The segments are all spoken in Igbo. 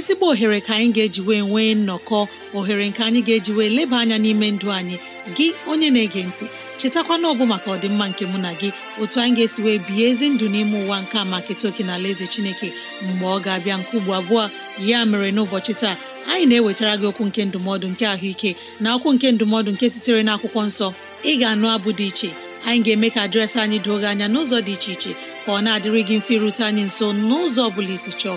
ezigbo ohere ka anyị ga-eji wee nwee nnọkọ ohere nke anyị ga-eji wee leba anya n'ime ndụ anyị gị onye na-ege ntị chetakwana ọbụ maka ọdịmma nke mụ na gị otu anyị ga-esi wee bihe ezi ndụ n'ime ụwa nke a maka etoke na ala eze chineke mgbe ọ ga-abịa nke ugbo abụọ ya mere n'ụbọchị taa anyị na-ewetara gị okwu nke ndụmọdụ nke ahụike na okwu nke ndụmọdụ nke sitere n'akwụkwọ nsọ ị ga-anụ abụ dị iche anyị ga-eme ka dịrasị anyị doo gị anya n'ụzọ dị iche iche ka ọ na-adịrị mfe irute anyị nso n'ụzọ ọ bụla isi chọọ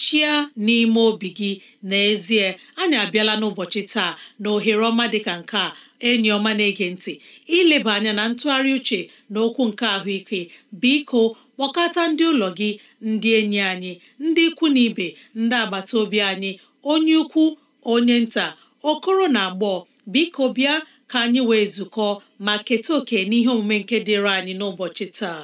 chia n'ime obi gị n'ezie anyị abịala n'ụbọchị taa na ohere ọma dịka nke a enyi ọma na-ege ntị ileba anya na ntụgharị uche na okwu nke ahụike biko kpọkọta ndị ụlọ gị ndị enyi anyị ndị ikwu na ibe ndị agbata obi anyị onye ukwu onye nta okoro na agbọọ biko bịa ka anyị wee zukọ ma keta oke n'ihe omume nke dịịrị anyị n'ụbọchị taa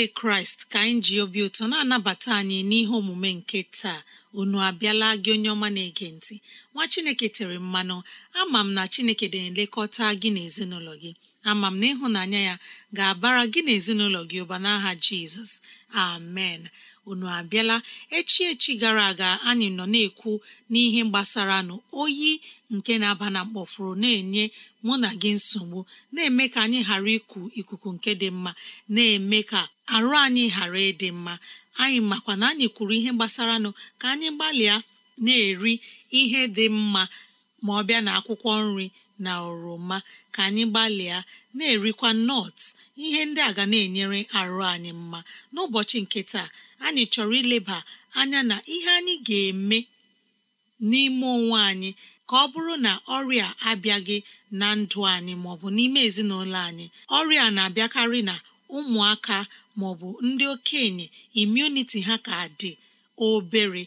nke kraịst ka anyị ji obi ụtọ na-anabata anyị n'ihe omume nke taa unu abịala gị onye ọma na-ege ntị nwa chineke tere mmanụ ama m na chineke na-elekọta gị na ezinụlọ gị ama m na ịhụnanya ya ga-abara gị na ezinụlọ gị ụba n'aha jizọs amen unu abịala echi echi gara aga anyị nọ na-ekwu n'ihe gbasara nụ oyi nke na-aba na mkpọfuru na-enye mụ na gị nsogbu na-eme ka anyị ghara iku ikuku nke dị mma na-eme ka arụ anyị ghara ịdị mma anyị makwa na anyị kwuru ihe gbasara nụ ka anyị gbalịa na-eri ihe dị mma ma ọ bịa na akwụkwọ nri na oroma ka anyị gbalịa na-erikwa nọt ihe ndị a ga na-enyere arụ anyị mma n'ụbọchị nke taa anyị chọrọ ileba anya na ihe anyị ga-eme n'ime onwe anyị ka ọ bụrụ na ọrịa abịaghị na ndụ anyị maọbụ n'ime ezinụlọ anyị ọrịa na-abịakarị na ụmụaka maọbụ ndị okenye imuniti ha ka dị obere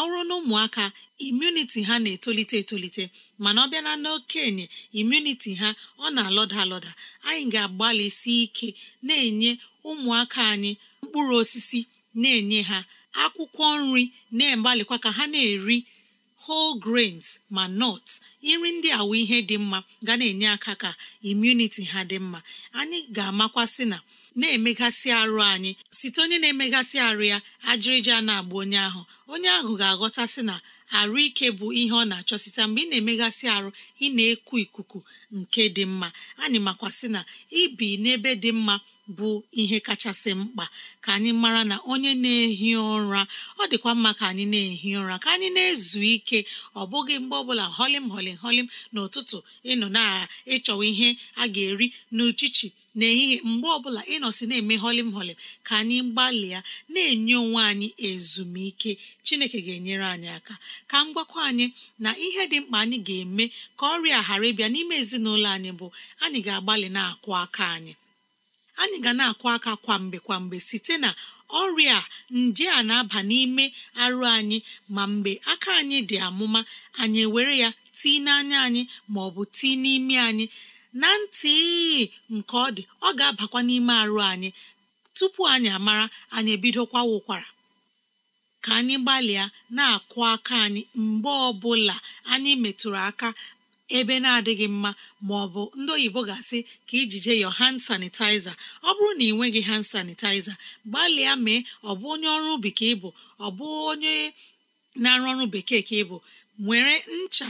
ọrụ na ụmụaka imuniti ha na-etolite etolite mana ọ bịana na n'okenye imuniti ha ọ na-alọda alọda anyị ga-agbalịsi ike na-enye ụmụaka anyị mkpụrụ osisi na-enye ha akwụkwọ nri na egbalịkwa ka ha na-eri whole grains ma nuts iri ndị awụ ihe dị mma ga na-enye aka ka immunity ha dị mma anyị ga-amakwasị na na-emegasị arụ anyị site onye na-emegasị arụ ya ajịrịja na-agba onye ahụ onye ahụ ga-aghọtasị na arụ ike bụ ihe ọ na-achọ site mgbe ị na-emegasị arụ ị na-eku ikuku nke dị mma anyị makwasị na ibi n'ebe dị mma bụ ihe kachasị mkpa ka anyị mara na onye na-ehi ụra ọ dịkwa mma ka anyị na-ehi ụra ka anyị na-ezu ike ọ bụghị mgbe ọbụla holim holim holim n'ụtụtụ ịnọ na ịchọwa ihe a ga-eri n'uchichi n'ehihie mgbe ọbụla ịnọsi na-eme holim holim ka anyị gbalịa na-enye onwe anyị ezumike chineke ga-enyere anyị aka ka m anyị na ihe dị mkpa anyị ga-eme ka ọrịa ghara ịbịa n'ime ezinụlọ anyị bụ anyị ga-agbalị na akụ aka anyị anyị ga na-akụ aka kwamgbe kwamgbe site na ọrịa ndị a na-aba n'ime arụ anyị ma mgbe aka anyị dị amụma anyị ewere ya tii n'anya anyị ma ọ bụ tii n'ime anyị na ntị nke ọ dị ọ ga-abakwa n'ime arụ anyị tupu anyị amara anyị ebidokwa wụkwara ka anyị gbalịa na-akụ aka anyị mgbe ọbụla anyị metụrụ aka ebe na-adịghị mma ma ọ bụ ndị oyibo ga-asị ka ijije yọ hand sanitizer ọ bụrụ na ị nweghị hand sanitizer gbalịa mee ọ bụ onye ọrụ ubi ka ịbụ ọ bụ onye na-arụ ọrụ bekee ka ịbụ nwere ncha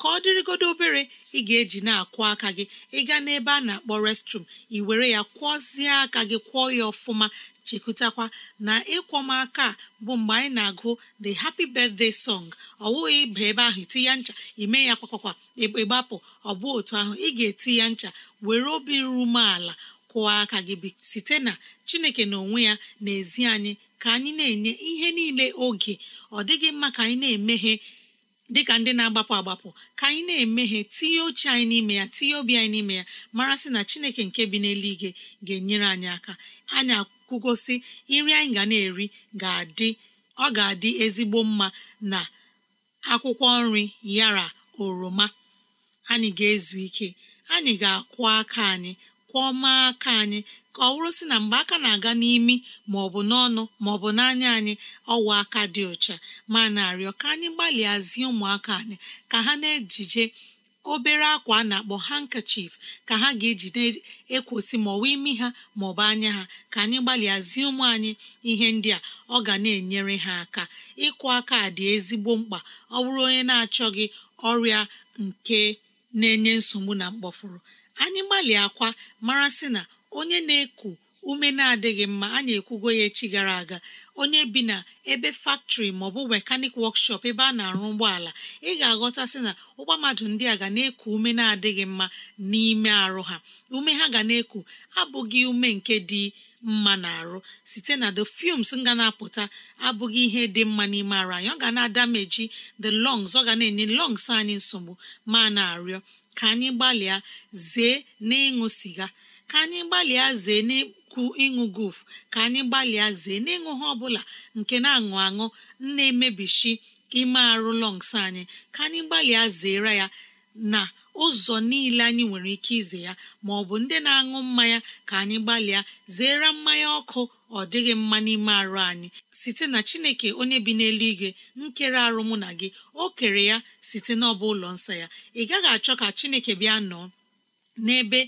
ka ọ dịrịgodo obere ị ga-eji na akwụ aka gị ịga n'ebe a na-akpọ restrum ị were ya kwọzie aka gị kwọọ ya ọfụma chekwutakwa na aka bụ mgbe anyị na-agụ the happy birthday song ọ bụghị ịba ebe ahụ iti ya ncha ime ya kpakwakwa ịgbapụ ọ bụ otu ahụ ị ga-eti ya ncha were obi ru umeala kwụọ aka gị bi site na chineke na onwe ya na-ezi anyị ka anyị na-enye ihe niile oge ọ dịghị mma ka anyị na-emeghe dịka ndị na-agbapụ agbapụ ka anyị na-emeghe tinye oche anyị n'ime ya tinye obi anyị n'ime ya mara sị na chineke nke bi n'eluigwe ga-enyere anyị aka anyị akwụgosi nri anyị ga na-eri ga-adị ọ ga-adị ezigbo mma na akwụkwọ nri yara oroma anyị ga-ezu ike anyị ga-akwọ aka anyị kwọma aka anyị ka ọ bụrụ sị na mgbe aka na-aga n'imi ma ọ bụ n'ọnụ ma ọ bụ n'anya anyị ọwa aka dị ọcha ma na-arịọ ka anyị gbalịa ụmụaka anyị ka ha na-ejije obere akwa a na-akpọ handkerchief ka ha ga na ekwosi ma ọ imi ha ma ọ bụ anya ha ka anyị gbalịa ụmụ anyị ihe ndị a ọ ga na-enyere ha aka ịkụ aka dị ezigbo mkpa ọ bụrụ onye na-achọghị ọrịa nke na-enye nsogbu na mkpọfụrụ anyị gbalịa akwa mara sị na onye na-eku ume na-adịghị mma anyị ekwugo ya echi gara aga onye bi na ebe faktrị maọbụ mekanik wọkshọp ebe a na-arụ ụgbọala ị ga aghọta sị na ụgbọ mmadụ ndị a ga na-eku ume na-adịghị mma n'ime arụ ha ume ha ga na-eku abụghị ume nke dị mma na-arụ site na the fumes nga na-apụta abụghị ihe dị mma n'ime arụ anyị ọ ga na-adameji the lungs ọ ga na-enye lungs anyị nsogbu ma na-arịọ ka anyị gbalịa zee na ịṅụ siga ka anyị gbalịa zee n'ikwu ịṅụ guf ka anyị gbalịa zee n'ịṅụ ha ọbụla nke na-aṅụ aṅụ na-emebishi ime arụ lọngs anyị ka anyị gbalịa zere ya na ụzọ niile anyị nwere ike ize ya ma ọ bụ ndị na-aṅụ mmanya ka anyị gbalịa zere mmanya ọkụ ọ dịghị mma n'ime arụ anyị site na chineke onye bi n'elu igwe nkere arụ mụ na gị o kere ya site n'ọba ụlọ nsọ ya ị gaghị achọ ka chineke bịa nọ n'ebe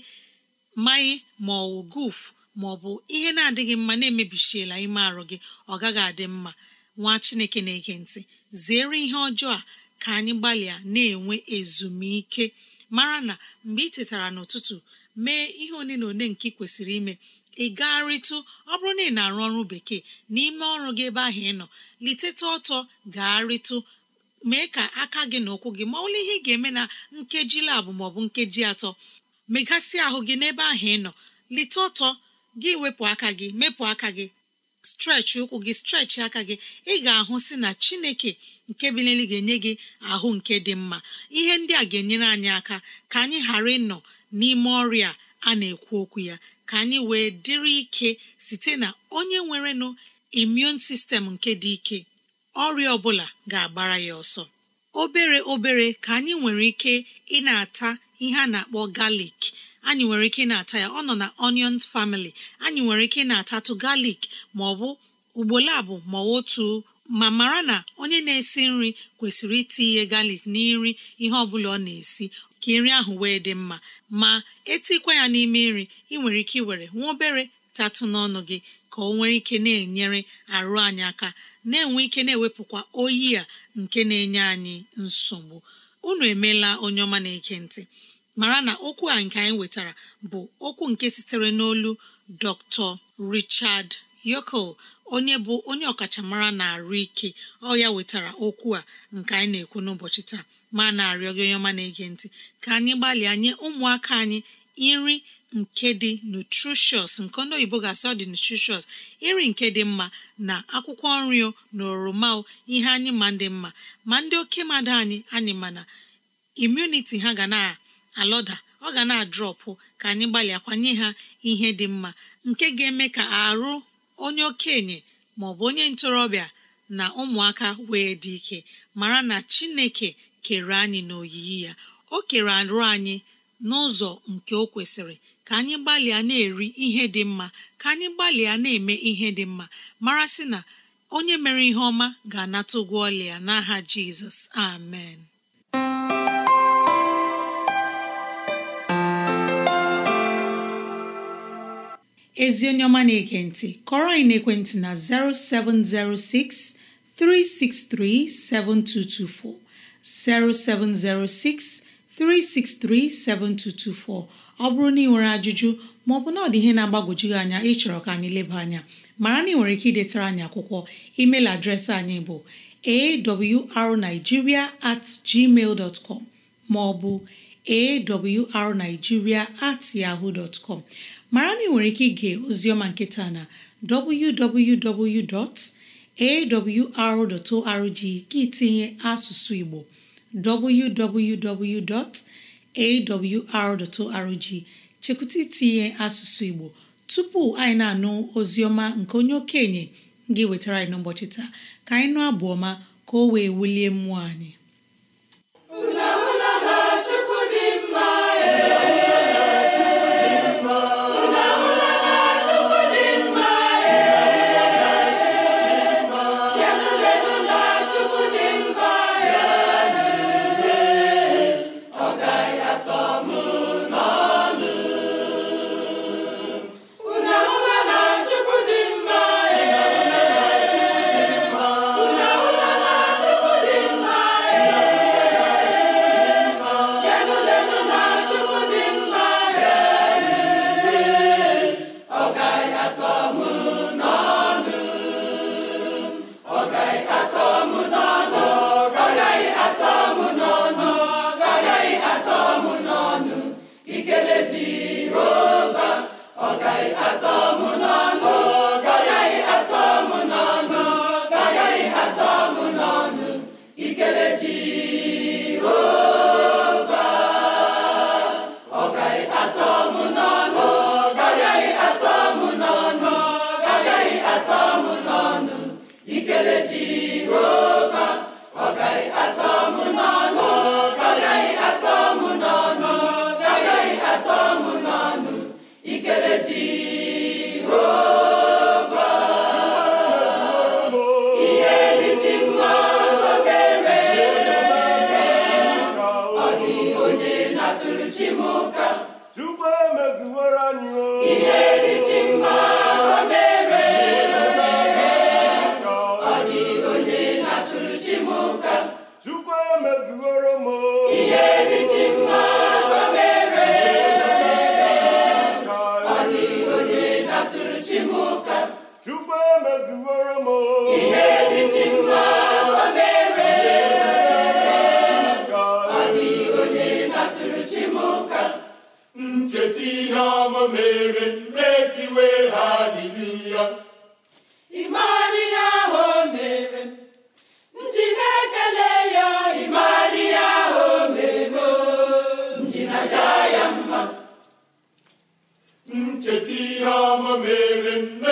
mmanya ma gofu bụ ihe na-adịghị mma na-emebisiela ime arụ gị ọ gaghị adị mma nwa chineke na-ege ntị zere ihe ọjọọ a ka anyị gbalịa na-enwe ezumike mara na mgbe ị tetara n'ụtụtụ mee ihe one na one nke ị kwesịrị ime ị gagharịtụ ọ bụrụ na ị na-arụ ọrụ bekee n'ime ọrụ gị ebe ahụ ị nọ litetụ ọtọ gagharịtụ mee ka aka gị na ụkwụ gị ma ọbụla ihe ị ga-eme na nkeji labụ maọbụ nkeji atọ megasị ahụ gị n'ebe ahụ ị nọ lite ọtọ gị wepụ aka gị mepụ aka gị strechi ụkwụ gị strechi aka gị ị ga-ahụ si na chineke nke bilili ga-enye gị ahụ nke dị mma ihe ndị a ga-enyere anyị aka ka anyị ghara ịnọ n'ime ọrịa a na-ekwu okwu ya ka anyị wee dịrị ike site na onye nwerenụ imun sistem nke dị ike ọrịa ọbụla ga-agbara ya ọsọ obere obere ka anyị nwere ike ị na-ata ihe a na-akpọ galik anyị nwere ike na-ata ya ọ nọ na onions family anyị nwere ike na-atatụ galik ma ọ bụ ugbolo abụ ma otu ma mara na onye na-esi nri kwesịrị itinye galik n'iri ihe ọ bụla ọ na-esi ka nri ahụ wee dị mma ma etikwa ya n'ime nri ị nwere ike iwere nwa obere tatụ n'ọnụ gị ka ọ nwere ike na-enyere arụ anyị aka na-enwe ike na-ewepụkwa oyi a nke na-enye anyị nsogbu unu emeela onye ọma na-eke ntị mara na okwu a nke anyị wetara bụ okwu nke sitere n'olu dr richard yokel onye bụ onye ọkachamara na-arụ ike ọ ya wetara okwu a nke anyị na-ekwu n'ụbọchị taa ma na-arịọ gị onye ọma na-ege ntị ka anyị gbalịa nye ụmụaka anyị nri nke dị nutrishus nke ndị oyibo ga-asị ọ dị nutritious iri nke dị mma na akwụkwọ nri na oroma ihe anyị ma ndị mma ma ndị oke mmadụ anyị anyị mana imuniti ha ga na alọda ọ ga na-adrọpụ ka anyị gbalịakwanye ha ihe dị mma nke ga-eme ka arụ onye okenye ma ọ bụ onye ntorobịa na ụmụaka wee dị ike mara na chineke kere anyị n'oyiyi ya o kere arụ anyị n'ụzọ nke o kwesịrị ka anyị gbalịa na-eri ihe dị mma ka anyị gbalịa na-eme ihe dị mma mara sị na onye mere ihe ọma ga-anata ụgwọ ọlịa n'aha jizọs amen ezi onye ọma na-ege ntị kọrọ anyị n'ekwentị na 0706 363 7224 0706 363 7224 ọ bụrụ na ị nwere ajụjụ maọbụ na ọ dị ihe na-agbagwoju gị anya chọrọ ka anyị leba anya mara na ị nwere ike idetara anyị akwụkwọ email adreesị anyị bụ awrnigeria at gmail dot com maọbụ awrnigeria at yahoo dot com mara na ị nwere ike ige ozioma nketa na www.awr.org gị tinye asụsụ Igbo www.awr.org chekwụta itinye asụsụ Igbo tupu anyị na-anụ ozioma nke onye okenye gị wetara anyị n'ụbọchị taa ka anyị nụ abụ ka o wee wulie mmụọ anyị Chukwu emezuworo m ihe dị mma o mere ọ dị onye na chi m ncheta ihe ọma mere metiwe ha dịdị ya ịmara ihe ahụ o mere nji na-ekele ya ịmara ihe ahụ o mere nji ya mma ncheta ihe ọma mere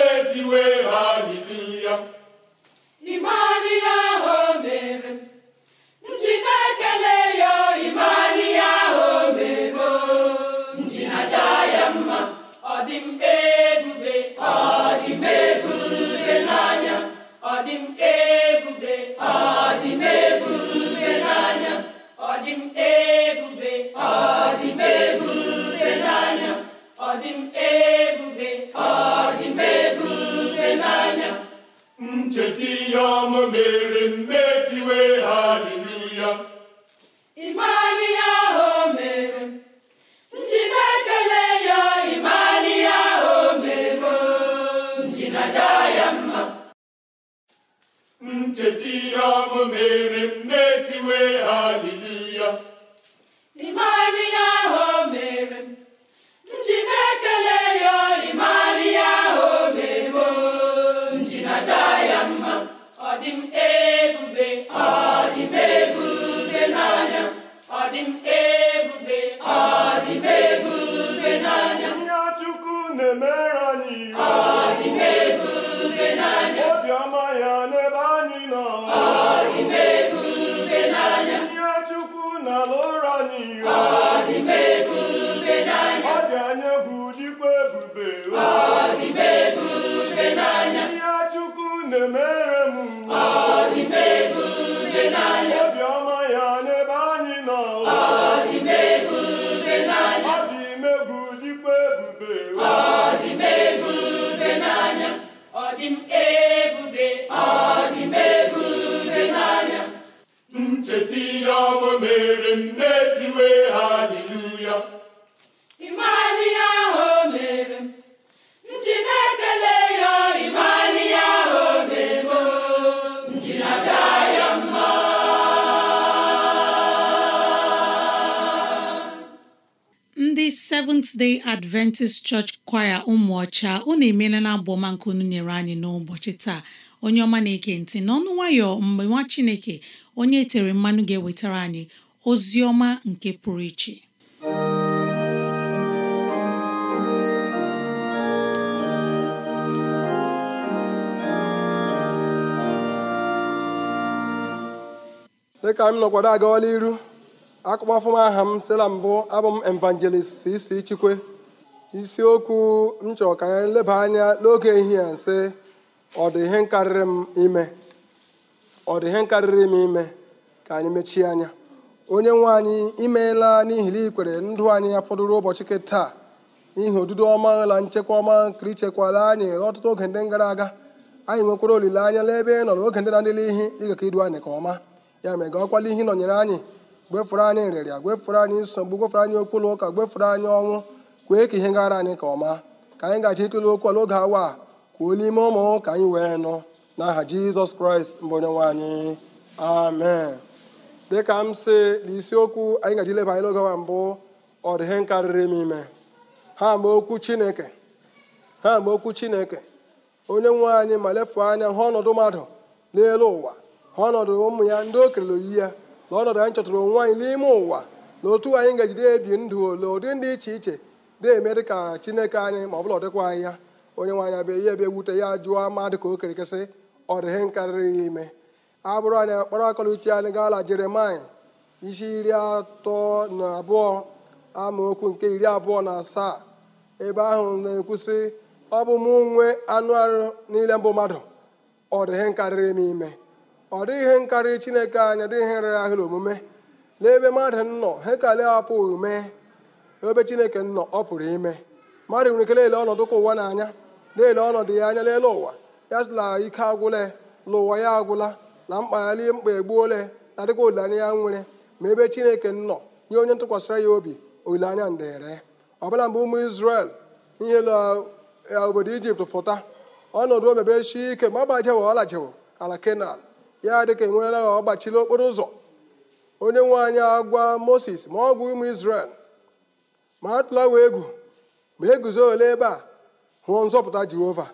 ebube ọ dị m ebube n'anya ncheta ihe ọmụ mere m Seventh Adventist Church Choir ụmụọcha unu emeela na abụ ọma nke unu nyere anyị n'ụbọchị taa onye ọma na-eke ntị n'ọnụ nwayọ mgbe nwa Chineke onye e tere mmanụ ga-ewetara anyị ozi ọma nke pụrụ iche dịka m nọkwado iru akpọfụm aha m sịla mbụ abụ m evangelist isi chikwe isiokwu m chọrọ ka anyị leba anya n'oge ehihie a ihe karịrị m ime ọ dị ihe karịrị m ime ka anyị mechie anya onye nwe anyị imeela n'ihi na ikwere ndụ anyị ya fọdụrụ ụbọchị nke taa ihe odudo ọma la nchekwa ọma nkiri ichekwala anyị ọtụtụ oge ndị gara aga anyị nwekwara olileanya n'ebe ị nọ n'oge ndị na-adịla ihe ịga idu anyị nke ọma ya mere ga ọkwala ihe nọnyere anyị gwefere anyị nrịrịa gwefere anyị nsogbu gwefere anyị okpuru ụka gwefere anyị ọnwụ kwee ka ihe gara anyị ka ọma ka anyị gaji ịtụle okwu n'oge oge awa a kwuo n'ime ụmụ ka anyị wee nụ n'aha jizọs kraịst mbụ onye nwe anyị amen dịka m si na anyị gaji leba anyị n'oge awa mbụ ọ ihe m ime ha mgbe okwu chineke ha mgbe okwu chineke onye nwe anyị ma lefu anya hụ ọnọdụ mmadụ n'elu ụwa ha ọnọdụ ụmụ ya ndị o kelere ya na ọnọdụ anyị chọtụrụ onwe anyị n'ime ụwa na otu anyị ga-ejide ebi ndụ ole ụdị ndị iche iche na-eme dị ka chineke anyị ma ọ bụla ọdịkwa anyị ya onye nwe anyị abịa ihe ebe ewute ya jụọ ama ka o kerekesị ọ dịghị karịrị ya ime abụrụ anyị akpara akọla uche anyị gaala jeremai isi iri atọ na abụọ amaokwu nke iri abụọ na asaa ebe ahụ na-ekwusị ọ bụ mụ nwee anụ arụ niile mbụ mmadụ ọ dịghị karịrị m ime ọ dịghị ihe nkarị chineke anya dịghị ihe rere ahịrị omume n'ebe mmadụ nọ ha ekele apụghị mee ebe chineke nọ ọ pụrụ ime mmadụ nwere ike lelee ọnọdụ ka ụwa n'anya ele ọnọdụ ya anya lelee ụwa ya sịla ike agwụla na ụwa ya agwụla na mkpa ya lie mkpa egbuola na dịkwa olileanya ya nwere ma ebe chineke nọ nye onye ntụkwasịra ya obi olileanya ndere bụla mgbe ụmụ Izrel ihe eh, obodo Ijipt fụta ọnọdụ omebe chi ike ma agbajewo ọ lajewo ala Kenan ya dịka enweela ha ọ gbachila okporo ụzọ onye nwe anyị agwa moses ma ọ gwa ụmụ israel ma atụla wee egwu ma eguzo ole ebe a hụọ nzọpụta jehova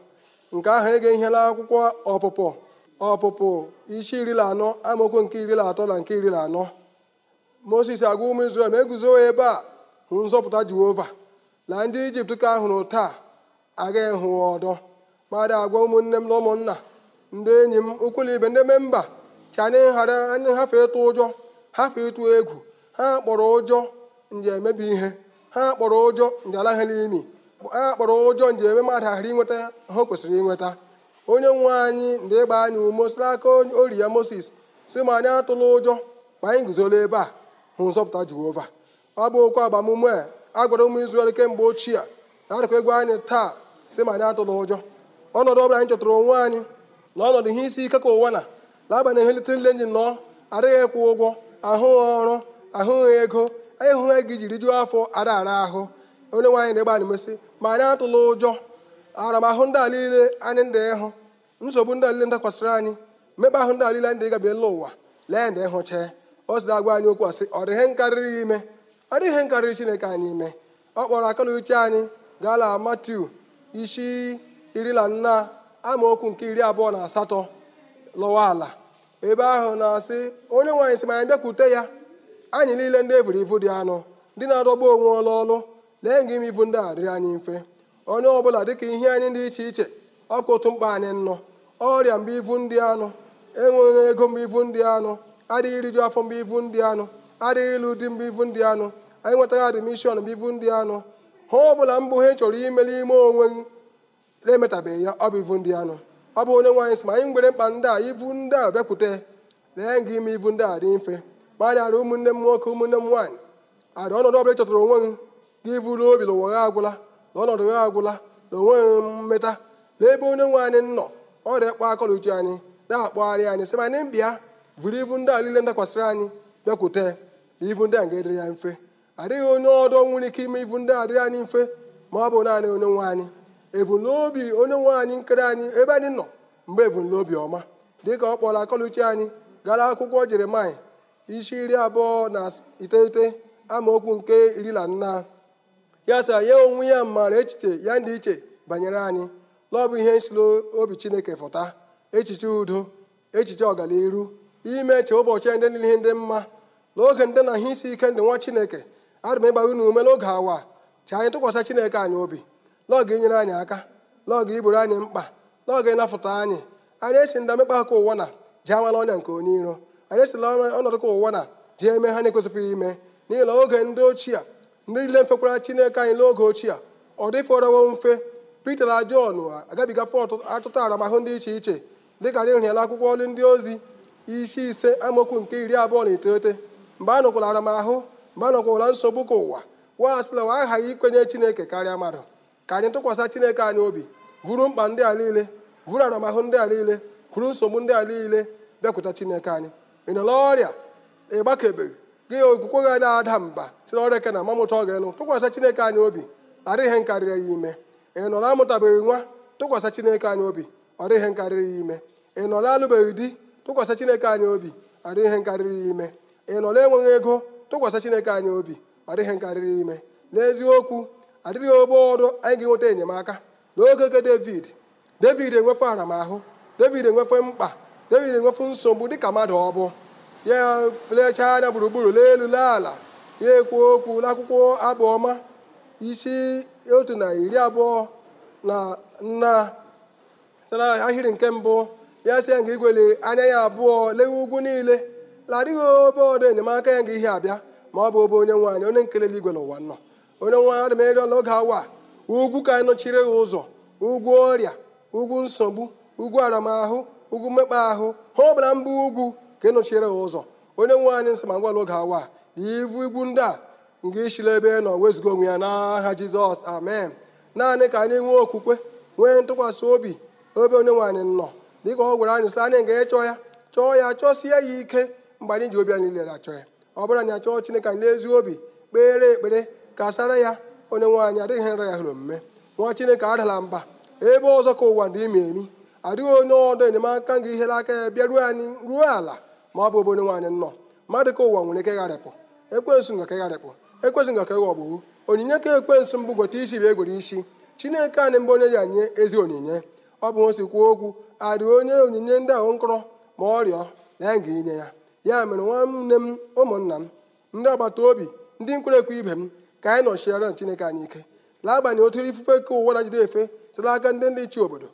nke ahụ ege ihe na akwụkwọ ọpụpụ ọpụpụ isi iri na anọ amaokwu nke iri na atọ na nke iri na anọ moses agwa ụmụ israel ma eguzo ebe a hụ nzọpụta jehova na ndị ijipt ka ahụrụ taa agaghị hụ ọdọ ma dị agwa ụmụnne m na ụmụnna ndị enyi m ụkwụla ibe ndị memba ka anyị ghara anyị hafe ịtụ ụjọ hafe ịtụ egwu ha kpọrọ ụjọ nje emebi ihe ha kpọrọ ụjọ nje alaghị n'imi ha kpọrọ ụjọ nje eme mmadụ ahịrị inweta ha kwesịrị inweta onye nwe anyị ndị ịgba anyị ume si n'aka ori ya moses si ma anyị atụla ụjọ ma anyị guzola ebe a hụ nzọpụta jehova ọ bụ okwu agbamume a gwara ụmụ izrel kemgbe ochie na-adịkwa egwu anyị taa si ma anyị atụla ụjọ ọnọdụ ọbụla anyị chọtara onwe anyị na ihe isi ike ka ụwa na n'agbanyeghị eletrikal engine nọ adịghị ịkwụ ụgwọ ahụghị ọrụ ahụghị ego ịhụghị gị jiri jụọ afọ ara ara ahụ onye nwaanyị na-egba anyị mesị ma anyị atụla ụjọ aramahụ ndị a anyị ndị ịhụ nsogbu ndị alile niile ndakwasịrị anyị mmekpa ahụ ndị alile niile ndị ịga gabiela ụwa lee ndị ịhụcha o si agwa anyị okwu asị ọ dịghị nkarịrị ime ọ dịghị nkarịrị chineke anyị ime ọ kpọrọ na uche anyị gaala Matiu isi iri na nna amaokwu nke iri abụọ na asatọ lọwa ala ebe ahụ na-asị onye nwaanyị sị ma anyị bịakwute ya anyị niile ndị evuru ivu dị anụ ndị na-adọgbu onwe ọlụ ọlụ lee nga ime ivu ndị a dịrị anyị mfe onye ọbụla dịka ihe anyị dị iche iche ọkụ otu mkpa anyị nnọ ọrịa mgbe ivu ndị anụ enweghị ego mgbe ivu ndị anụ adịghị iriju afọ mgbe ivu ndị anụ adịghị ịlụ di mgbe ivu ndị anụ anyị nwetaghị adịmishọn mgbe ivu ndị anụ ha bụla mbụ ha chọrọ imeli ime onwe gị na-emetabeghị ya ọ bụ ivu ndị anụ ọ bụ onye nwaanyị sị ma anyị nwere mkpa ndị a ivu ndị a bịakwute lee gị ime ivu ndị a dị mfe ma anyị ụmụnne m nwoke ụmụnne m nwaanyị arị ọnọdụ ọbụla chọtara onwe gị gị vụrụ obi na gha agwụla na ọnọdụ gha agwụla na onweghị mmeta ebe onye nwe anyị nọ ọrịa kpọ akọla uche anyị na-akpọgharị anyị sị ma anyị mbịa vụrụ ibu ndị a niile ndakwasịrị anyị bịakwute na ibu ndị a ga-edịrị ya mfe adịghị onye ọdọ nwere ike ime ibu ndị a dịrị anyị mfe ma ọ bụ naanị onye nwe anyị ebumnobi onye nwe anyị nkere anyị ebe anyị nọ mgbe ebumnobi ọma dịka ọ kpọrọ akọluchi anyị gara akwụkwọ jeremaya isi iri abụọ na iteghete amaokwu nke iri na nna ya ya onwe ya mara echiche ya ndị iche banyere anyị n'ọ bụ ihe nsilo obi chineke fụta echiche udo echiche ọganiru ime che ụbọchị ndị niile ndị mma n'oge ndị na ihe isi ike ndị nwa chineke adịm ịgba unu ume n'oge awa ka anyị tụkwasị chineke anyị obi lọgụ inyere anyị aka lọgụ iburu anyị mkpa lọgụ ịnapụta anyị anyị esi ndị amịkpa aka ụwa na ji amala ọnya nke onye iro anyị esila ọnọdụ ka ụwa na ji eme ha na-ekwesịghị ime n'ihi na oge ndị ochie ndị niile mfekwara chineke anyị n'oge ochie ọ dịfọrọwo mfe pita na jọn agabiga fọt aramahụ ndị iche iche dịka anyị hụrụ akwụkwọ ọlụ ndị ozi isi ise amaokwu nke iri abụọ na iteghete mgbe a nọkwara aramahụ mgbe a nsogbu ka ụwa wa asịla aghaghị ikwenye chineke karịa mmadụ ka anyị tụkwasị chineke anyị obi vụrụ mkpa ndị a niile vụrụ aramahụ ndị a niile vụrụ nsogbu ndị a niile bịakwuta chineke anyị ị nọ n'ọrịa ịgbakebeghị gị okwukwe gị na-ada mba si na ọrịa ke na mamụta ọ ga-enụ tụkwasị chineke anyị obi ara ihe nkarịrị ya ime ị nọ na-amụtabeghị nwa tụkwasị chineke anyị obi ọra ihe nkarịrị ya ime ị nọ na-alụbeghị di tụkwasị chineke anyị obi ọra ihe nkarịrị ya ime ị nọ na-enweghị ego tụkwasị chineke anyị obi ọra ihe nkarịrị ime n'eziokwu adịghị ogbe ọrụ anyị ga-enweta enyemaka n'oge oge david david enwefe aramahụ david enwefe mkpa david enwefe nsogbu dịka mmadụ ọ bụ ya plechaa anya gburugburu lee elu ala ya ekwu okwu n'akwụkwọ abụ isi otu na iri abụọ na nna sara ahịrị nke mbụ ya sị ya nga igwele anya ya abụọ lewe ugwu niile la adịghị obe ọdụ enyemaka ya nga ihe abịa ma ọ bụ obe onye nwaanyị onye nkele igwele ụwa nọ onye nwa adị m ịrịọ awa ugwu ka anyị nọchiri gị ụzọ ugwu ọrịa ugwu nsogbu ugwu aramahụ ugwu mmekpa ahụ ha ọbara mbụ ugwu ka ị nọchiri ụzọ onye nwe anyị nsị ma ngwa oge awa ivu igwu ndị a nga ishila ebe nọ wezuga onwe ya n'aha jizọs amen naanị ka anyị nwee okwukwe nwee ntụkwasị obi obe onye nwe anyị nọ dịka ọ gwara anyị sị anyị ga-ịchọ ya chọọ ya chọsie ya ike mgbe anyị ji obi anyị niile achọ ya ọ bụrụ anyị achọọ chineke anyị n'ezi obi kpere ekpere k'asara ya onye nwaanyị adịghị nra ya hụrụ omume nwa chineke adala mba ebe ọzọ ka ụwa dị ime emi adịghị onye ọdụ enyemaka ga ihere aka ya bịa ruo anyị ruo ala ma ọ bụ ebe onye nwaanyị nnọọ mmadụ ka ụwa nwere ike gharịpụ ekwensu nga ka gharịpụ ekwensu nga ka gha onyinye ka ekwensu mbụ gweta isi bụ egwere isi chineke anyị mgbe onye ji nye ezi onyinye ọ bụ osi kwuo okwu adịghị onye onyinye ndị ahụ nkọrọ ma ọ rịọ na ya ga inye ya ya mere nwanne m ụmụnna m ndị agbata obi ndị nkwere ekwe ibe m ka anyị nọchiara chineke anyị ike n'agbanyeghị otu ifufe ka ụwa na jide efe site aka ndị ndị chi obodo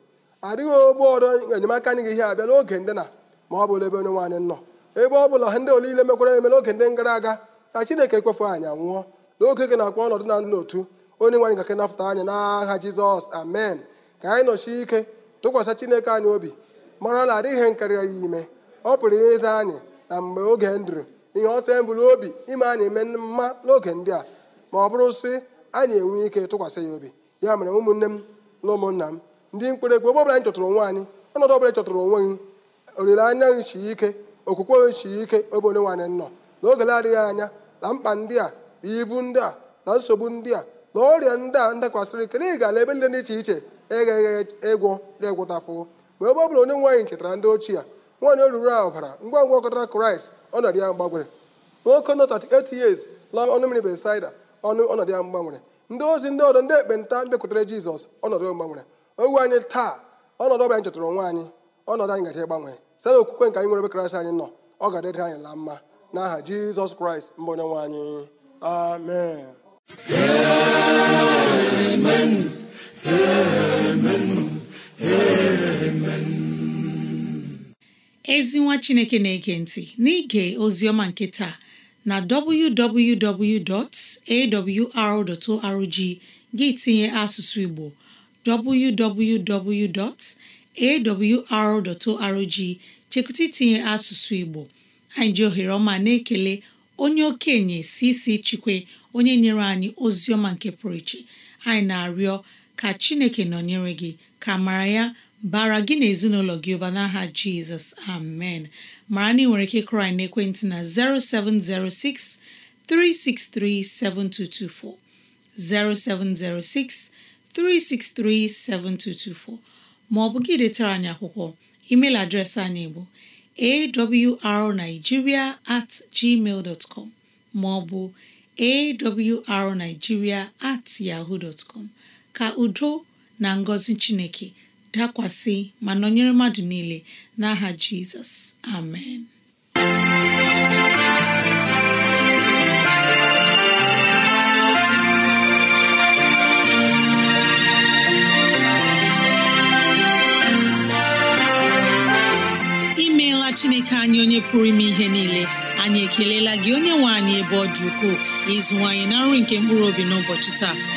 adịghị ogbe ọrụ enyemaka anyị ga ihe abịa n'oge ndị na ma ọ bụla ebe onye nwaanyị nọ ebe ọ bụla ndị ole ile mekwara eme n'oge ndị gara aga ka chineke ekwefu anyị anwụọ n'oge gị na-akpọ ọnọdụ na n'otu onye nwaanyị gake nafụta anya n'agha jizọs amen ka anyị nọchie ike tụkwasị chineke anyị obi mara na adịghị ihe ya ime ọ pụrụ ịza anyị na mgbe oge ndụrụ ihe ọsọ eburu obi ime anyị eme mma n'oge ndị a ma ọ bụrụ sị anyị enwe ike tụkwasị ya obi ya mere ụmụnne m na ụmụnna m ndị mkpere ekpe ebe ọbụla anyị chọtụrụ onwe anyị ọnọdụ ọbụla chọtụrụ onwe gị olileanya gị ike okwukwe gị ike ebe onye nwe nọ na oge na-adịghị anya na mkpa ndị a na ibu ndị a na nsogbu ndị a na ọrịa ndị a ndakwasịrị ike na ịga na ebe ndị dị iche iche egheghị ịgwọ dị ịgwụtafụ ma ebe ọ onye nwaanyị chetara ndị ochie nwaanyị oruru a ọbara ngwa ngwa ọkọtara kraịst ọnọdụ ya mgbanwere nwoke nọ 38 years la ọnụ mmiri besida ọnọdụ ya mgbanwere ndị ozi ndị ọdọ ndị ekpenta mbịakwutere jizọs ọnọdụ mgbanwere owu anyị taa ọnọdụ ọbịa anyị chetara onwe anyị ọnọdụ anyị gaji ịgbanwe site okwukwe nke anyị nwere ebe anyị nọ ọ ga dịrị anyị la mma n'aha jizọs kraịst mbụ onye nwe anyị amen amen ezi nwa chineke na-ege ntị n'ige oziọma nke taa na www.awr.org gị tinye asụsụ Igbo www.awr.org chekụta itinye asụsụ Igbo anyị ji ohere ọma na-ekele onye okenye si isi chikwe onye nyere anyị ozi ọma nke pụrụ iche anyị na-arịọ ka Chineke nọnyere gị ka mara ya bara gị na ezinụlọ gị ụba n'aha Jizọs amen mara na ị nwere ike kụrụ anyị n'ekwentị na 0706 363 7224 0706 363 7224 ma ọ bụ gị detara anyị akwụkwọ email adreesị anyị bụ awrnigeria at gmail dot com ma ọ bụ awrnigeria at yahoo dot com ka udo na ngọzi Chineke dakwasị ma nọnyere mmadụ niile n'aha jizọs amen imeela chineke anyị onye pụrụ ime ihe niile anyị ekelela gị onye nwe anyị ebe ọ dị ukwuu ịzụwanyị na nri nke mkpụrụ obi n'ụbọchị taa